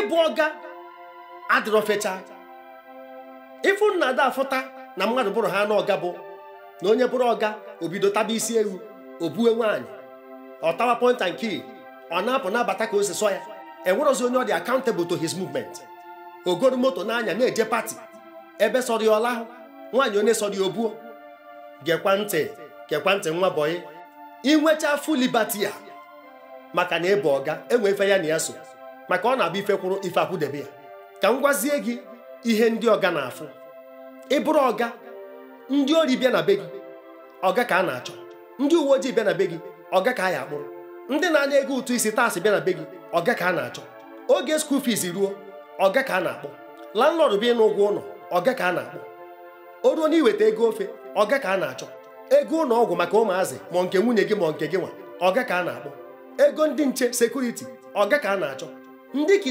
ịbụ ọga adịrọ fecha ịfụ nna ada afụta na mmadụ bụrụ ha n'ọga bụ na onye bụrụ ọga obido taba isi ewu o bue nwaanyị ọtawa tawa pọnta nke ọ na-apụ na-abata ka ose sọ ya enwerọzi onye ọ dị accountable to his movement ogoro moto n'anya na-eje pati ebe sọrọ ya ọla nwaanyị onye sọrọ ya obuo gekwa ntị gekwa ntị nwa bọyị inwecha full libati ya maka na ịbụ ọga enwe ife ya na ya so maka ọ na-abụ ife kwụrụ ife akwụdebe ya ka m gwazie gị ihe ndị ọga na-afụ ịbụrụ ọga ndị ori bịa na be gị ọga ka a na-achọ ndị uwe ojii bịa na be gị ọga ka a ya akpụrụ ndị na-anya ego ụtụ isi taasị bịa na be gị ọga ka a na-achọ oge skuul fiis ruo ọga ka a na-akpọ landlọd bịa na ụgwọ ụlọ ọga ka a na-akpọ o ruo na iweta ego ofe ọga ka a na-achọ ego ụlọ ọgwụ maka ụmụazị ma nke nwunye gị ma nke gị nwa ọga ka a na-akpọ ego ndị nche sekuriti ọga ka a na-achọ Ndeki